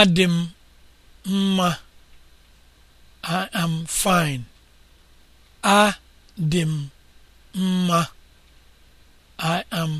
adị m mma I am fine adị m mma I am